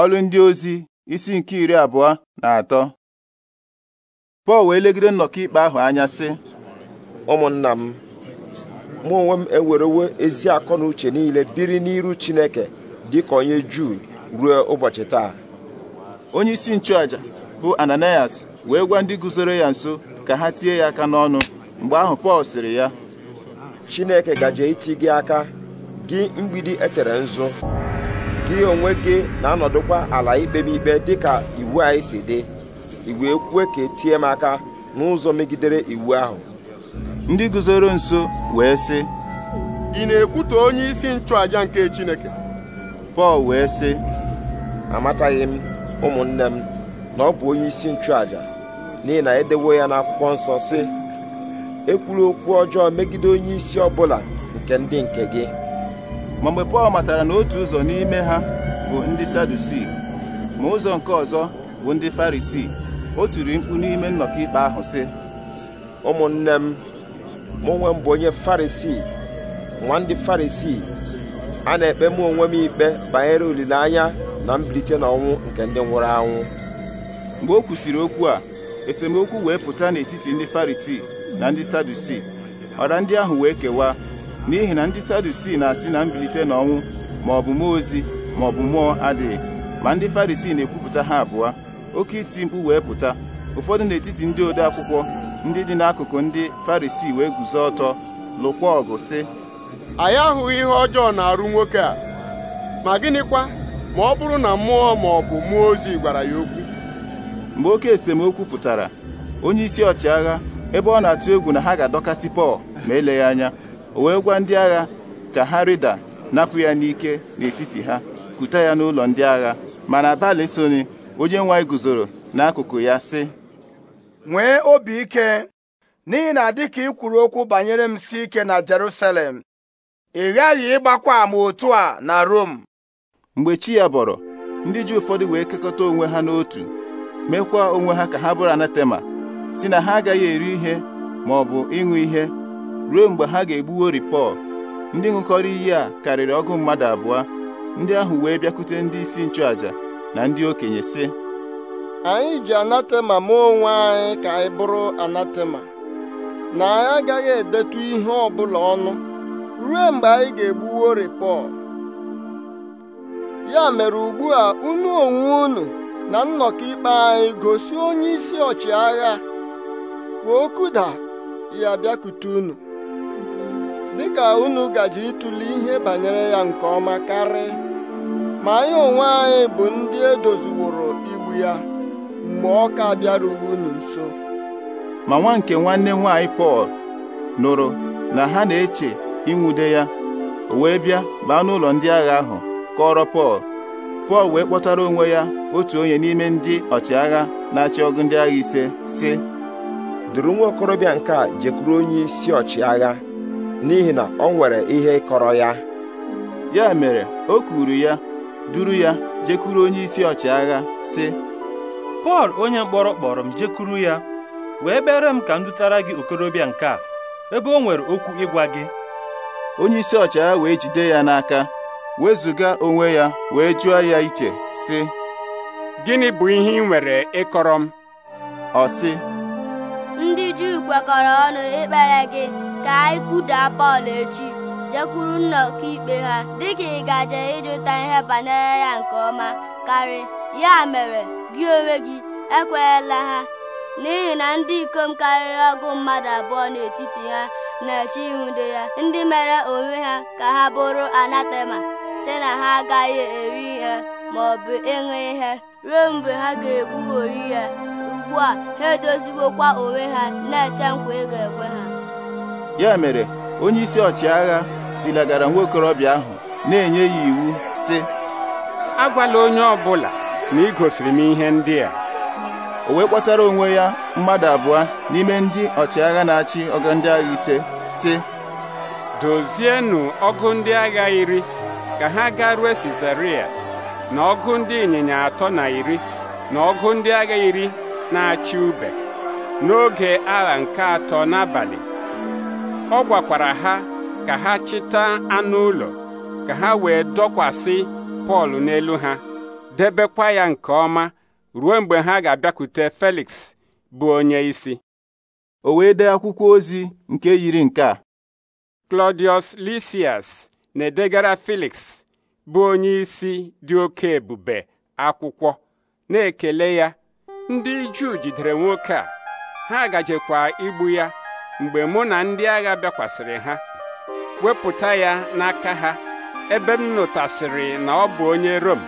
ọlụ ndị ozi isi nke iri abụọ na atọ Pọl wee legide nnọkọ ikpe ahụ anya sị ụmụnna m mụ onwe m ewerewo ezi akọ na uche niile biri n'iru Chineke dịka onye Juu ruo ụbọchị taa onye isi nchụaja bụ Ananias wee gwa ndị guzoro ya nso ka ha tie ya aka n'ọnụ mgbe ahụ Pọl sịrị ya Chineke gaje iti gị aka gị mgbidi etere nzu gị onwe gị na-anọdụkwa ala ikpe m ikpe dịka iwu anyị si dị iwu ekwue ka etie m aka n'ụzọ megidere iwu ahụ ndị guzoro nso wee sị ị na ekwute onye isi nchụaja nke Chineke Pọl wee sị amataghị m ụmụnne m na ọ bụ onye isi nchụaja n'ihi na edewo ya n'akwụkwọ nsọ sị ekwuru okwu ọjọọ megide onye isi ọbụla nke ndị nke gị ma mgbe Pọl matara na otu ụzọ n'ime ha bụ ndị Sadusii ma ụzọ nke ọzọ bụ ndị Farisii o tiri mkpu n'ime nnọkọ ikpe ahụ si. ụmụnne m mụ onwe m onye Farisii nwa ndị Farisii a na-ekpe mụ onwe m ikpe banyere olileanya na mbilite ọnwụ nke ndị nwụrụ anwụ mgbe o kwusịrị okwu a esemokwu wee pụta n'etiti ndị Farisii na ndị Sadusii ọra ndị ahụ wee kewaa n'ihi na ndị sadusii na-asị na mbilite n'ọnwụ ma ọ bụ mmụọ ozi ma ọ bụ mmụọ adịghị ma ndị farisii na-ekwupụta ha abụọ oke iti mkpu wee pụta ụfọdụ n'etiti ndị ode akwụkwọ ndị dị n'akụkụ ndị farisii wee guzo ọtọ lụkwa ọgụ sị anyị ahụghị ihe ọjọọ na-arụ nwoke a ma gịnịkwa ma ọ bụrụ na mmụọ ma ọ bụ mmụọ ozi gwara ya okwu mgbe oke esemokwu pụtara onye isi ọchịagha ebe ọ na-atụ egwu na ha ga-adọkasị Pọl ma eleghị anya o wee gwa ndị agha ka ha rịda napụ ya n'ike n'etiti ha kuta ya n'ụlọ ndị agha mana abalị onye nwa guzoro n'akụkụ ya sị nwee obi ike n'ihi na dịka ị kwuru okwu banyere m si ike na Jerusalem ị ghaghị ịgbakwa ama otu a na Rom mgbe chi ya bọrọ ndị ji ụfọdụ wee kekọta onwe ha n'otu mekwa onwe ha ka ha bụrụ anatema si na ha agaghị eri ihe ma bụ ịṅụ ihe ruo mgbe ha ga-egbuwo Ripọl ndị ṅụkọrọ iyi a karịrị ọgụ mmadụ abụọ ndị ahụ wee bịakwute ndị isi nchụaja na ndị okenye si anyị ji anatema mee onwe anyị ka anyị bụrụ anatema na anyị agaghị edetu ihe ọ bụla ọnụ ruo mgbe anyị ga-egbuwo Pọl ya mere ugbu a unu onwe unu na nnọkọ ikpe anyị gosi onye isi ọchịagha ka o ya bịakute unu dịka unu gaji ịtụli ihe banyere ya nke ọma karị ma anyị onwe anyị bụ ndị edoziworo igbu ya mgbe ọ ka bịarughị unu nso ma nwa nke nwanne nwaanyị Pọl nụrụ na ha na-eche ịnwude ya o wee bịa baa n'ụlọ ndị agha ahụ kọrọ Pọl Pọl wee kpọtara onwe ya otu onye n'ime ndị ọchịagha na-achị ọgụ ndị agha ise si duru nwa okorobịa nke a jekwuru onye isi ọchịagha n'ihi na o nwere ihe kọrọ ya ya mere o kwuru ya duru ya jekuru onye isi ọchịagha si Pọl onye mkpọrọ kpọrọ m jekuru ya wee bere m ka m dutara gị okorobịa nke a ebe o nwere okwu ịgwa gị onye isi ọchịagha wee jide ya n'aka wezụga onwe ya wee jụọ ya iche sị gịnị bụ ihe ị nwere ịkọrọ m ọ ndị Juu kwekọrọ ọnụ ikpere gị ka anyị kudaa Pọl echi jekwuru nnọkọ ikpe ha dịka ị gaje ịjụta ihe banyere ya nke ọma karị ya mere gị onwe gị ekweela ha n'ihi na ndị ikom karịrị ọgụ mmadụ abụọ n'etiti ha na-eche ihude ya ndị mere onwe ha ka ha bụrụ anatema si na ha agaghị eri ihe ma ọ ịṅụ ihe ruo mgbe ha ga-ekpugheri ya ugbu a ha edoziwokwa onwe ha na-eche nkwa ị ga-ekwe ha ya mere onye isi ọchịagha tilagara nwa okorobịa ahụ na-enye ya iwu sị agwala onye ọ bụla na ị gosiri m ihe ndị a o wee kpọtara onwe ya mmadụ abụọ n'ime ndị ọchịagha na-achị ọgụ ndị agha ise sị dozienụ ọgụ ndị agha iri ka ha ga rue Sizaria na ọgụ ndị ịnyịnya atọ na iri na ọgụ ndị agha iri na-achị ube n'oge agha nke atọ n'abalị ọ gwakwara ha ka ha chịta anụ ụlọ ka ha wee dọkwasị Pọl n'elu ha debekwa ya nke ọma ruo mgbe ha ga-abịakwute Felix bụ onye isi o wee dee akwụkwọ ozi nke yiri nke a Claudius Lysias na-edegara Felix bụ onye isi dị oke ebube akwụkwọ na-ekele ya ndị Juu jidere nwoke a ha gajekwa igbu ya mgbe mụ na ndị agha bịakwasịrị ha wepụta ya n'aka ha ebe m nụtasịrị na ọ bụ onye Rom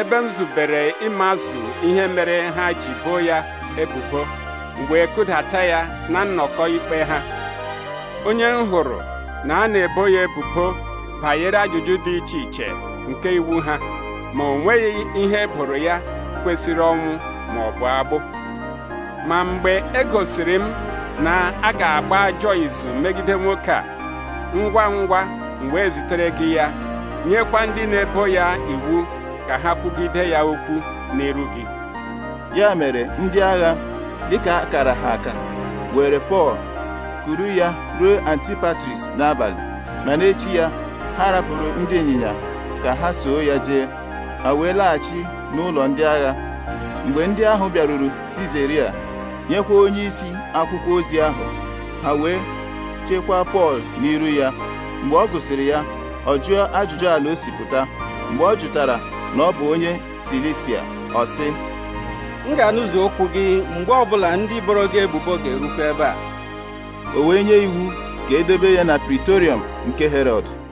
ebe m zubere ịmazụ ihe mere ha ji boo ya ebubo mgbe kụdata ya na nnọkọ ikpe ha onye m hụrụ na a na-ebo ya ebubo banyere ajụjụ dị iche iche nke iwu ha ma o nweghị ihe eboro ya kwesịrị ọnwụ ma ọ bụ agbụ ma mgbe e gosiri m na a ga-agba ajọ izu megide nwoke a ngwa ngwa mgbe wee zitere gị ya nyekwa ndị na-ebo ya iwu ka ha kwugide ya okwu n'iru gị ya mere ndị agha dịka akara ha aka were Pọl kuru ya ruo Antipatris n'abalị ma n'echi ya ha rapụrụ ndị ịnyịnya ka ha soo ya jee ha wee laghachi n'ụlọ ndị agha mgbe ndị ahụ bịaruru Sizeria nyekwa onyeisi akwụkwọ ozi ahụ ha wee chekwaa Pọl n'iru ya mgbe ọ gụsịrị ya ọ jụọ ajụjụ ala o si mgbe ọ jụtara na ọ bụ onye Silisia ọ sị m ga-anụzi okwu gị mgbe ọbụla ndị boro gị ebubo ga-erukwa ebe a o wee nye iwu ga edebe ya na Pritorium nke Herọd